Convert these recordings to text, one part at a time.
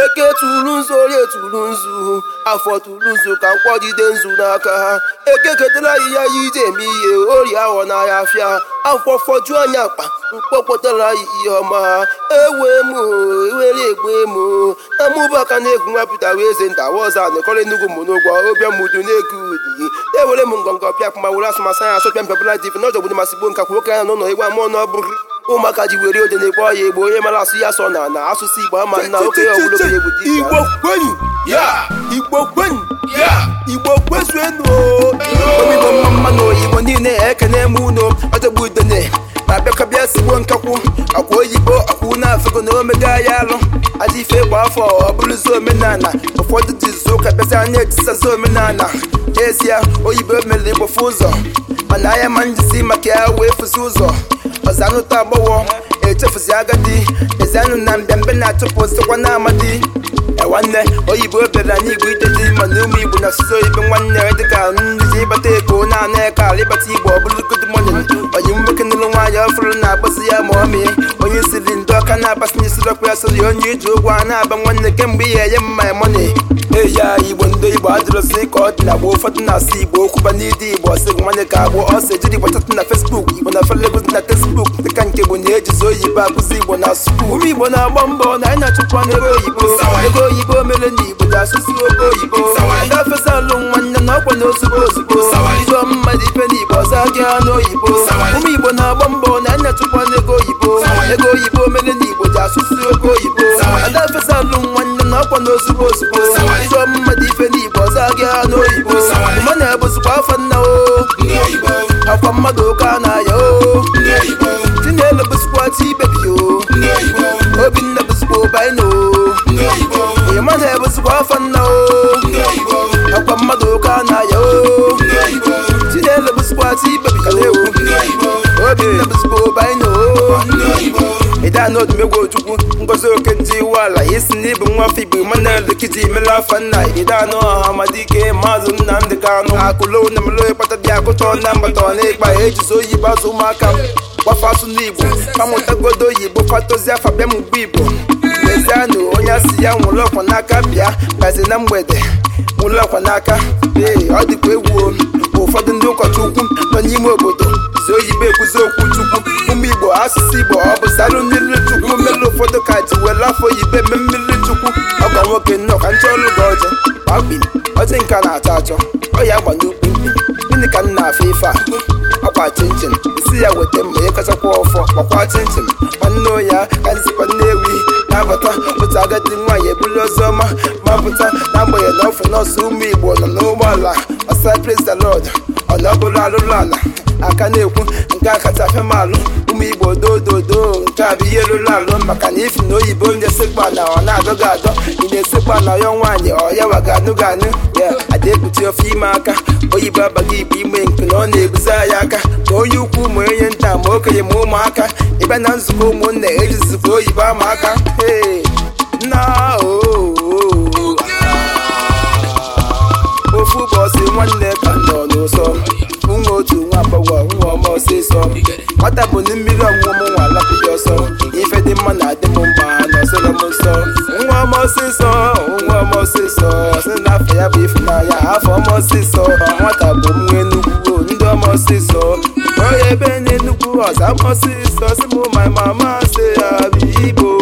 eke tụrụ nzu orie tụrụ nzu afọ tụrụ nzu ka nkwọ jide nzu n'aka ha eke ketara ya iji eme ihe orie ahọ n'ahịa afịa afọ fọjuo anya akpa mkpọpụtara ihe ọma ewe m e were egbe m na mụbaka na egwu nwapụta wee eze nta ọzọ nekọrọ enugwu m n'ụgwọ obịa mudu na-ego udi ewere m ngọngọ pịa pụma were asụmasụ anya asụ pịa mpịabụla div n'ọjọgbụdụ masị gbo nka kwuo ka ya n'ụlọ egwu ọ n'ọbụrụ ụmụaka ji were ode na-ekpo ọya igbo onye mara asụ ya so na na asụsụ igbo ama na oke ogologo ọbụla okenye egwu igbo kwenyu igbo igbo mma mma oyibo niile ekene m unu ọdọgbu udene ma bịakọbịa sigbo nkakwu akwa oyibo ọkwụ na afọgo na omega ya alụ aja ife gba afọ ọ bụrụzi omenala ụfọdụ dizu ka bịazi na etisazi omenala n'ezie oyibo mere igbofu ụzọ mana anya ma njisi maka ya wee fụzi ụzọ ọzanụta agbọghọ echefuzi agadi ezianụ na mbịambịa na-atụpụ osikwa amadi nwanne oyibo bịara n'igwe ije dị mma na ụmụ igbo na asụsụ oyibo nwanne dịka nduzi ịbata ego na-ana ala ịbata igbo ọ bụrụ good morning onye nwoke nụrụ nwaanyị ọfụrụ na-agbazi ya ma ọ mee onye siri aka na-abasị na isiri ọkụ ya onye iji ụgwọ a na-aba nwanne kemgbe ihe enye eya igbo ndị igbo adịrọzi ka ọ dị na gboo ụfọdụ igbo okwuba igbo ọsịgụ nwanne ka agbụ igbo na fesbuk igbo na felegozi na tesbuk nke bụ mbọ na anyị na-achụkwa n'ego oyibo ego oyibo oyibo na ọkwa na ozugbo ozugbo igbo gị ụmụ igbo na-agba mbọ na anyị na-achụkwa n'ego oyibo ego ga-asụsụ oke oyibo nwanne na ọkwa n'ozugbo ozugbo ife n'igbo ọzọ n'oyibo mma na akwa mmadụ ụka na-aya o chinelo bụzikwa o mmadụ ụka na-aya o ya na odumegwu ojukwu ngozi oke ndị iwu ala isi na ịbụ nwa afọ igbo Emmanuel Ekiti imela afa nna ide anụ ọha amadike maazị Nnamdị Kanụ akụlo na melo ịkpata dị akụtọ na mbata na ịkpa ejizi oyi bazụ ụmụaka m gbafa asụ n'igbo amụtagodo oyibo fatozi afa bịa m ugbo igbo lezianụ onye asị ya nwụrụ ọkwa n'aka bịa gazi na mgbede nwụrụ ọkwa n'aka ee ọ dịkwa egwu ụfọdụ ndị ụkọchukwu nọ n'ime obodo zi oyibo ekwuzi okwu chukwu ụmụ igbo asụsụ igbo sarụ mmiri chukwu mere ụfọdụ kati were afọ ibe mme mmiri chukwu ọgwa nwoke nnọọ ka nche ọrụ gị ọjọ akpi ọjị nka na-achọ achọ ọ ya agba n'ukwu mkpi gịnị ka m na-afụ ife a ọkwa chinchin isi ya weta mma ya kachakwa ọfọ gbakwa chinchin nwanne ụnya ka nzikwa nnewi na-abata otu agadi nwaanyị ebuli ọzọ ọma ma pụta na-agbanyeghị na ọfụ nọọsụ ụmụ igbo nọ n'ụgbọala ọsa presa lọd ọ na ọ bụrụ arụrụ ala aka na-ekwu nke a kacha afịa alụ ụmụ igbo dododo nke a bụ ihe rụrụ alụ maka na ifi na oyibo na-esekpa na ọ na-adọghị adọ ị na-esekpa na ya nwaanyị ọ ya waganụ anụ ya adekpuchi ofe ime aka oyibo abaghị igbo ime nke na ọ na ebuzi ya aka ma onye ukwu ma onye nta ma okenye ma ụmụaka ịbịa na nzukọ ụmụnne ejizikwa oyibo ama aka ọsịsọ nwata bụ na mmiri ọṅụṅụ m nwa alapụghị ọsọ ife dị mma na adị m mma na ọsọrọ m nsọ nwa m ọsịsọ nwa m ọsịsọ sị na afọ ya bụ ịfụnanya afọ m ọsịsọ nwata bụ nwa enugwu ndị ọma ọsịsọ onye ebe na-enugwu ọza m ọsịsọ si m ma mama si ya bụ igbo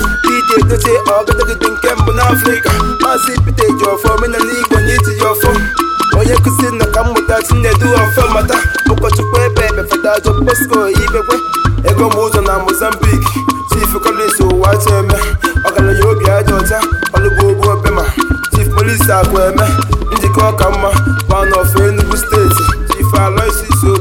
na ete ọgọdọgide nke mbụ n'afrịka maazị pete ji ọfọ omenala igbo na itinye ọfọ onye nkụzi na ka mmụta chinedu ọfọ mata ụkọchukwu ebe ebe fada jọn bosco ibekwe ego m ụzọ na mozambik chief collins ụwa chieme eh, ọgaranya obi aja ọcha ọlụgbu obema chief eme njikọ ọka mma pan of enugwu steeti chief aloysius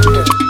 Yeah.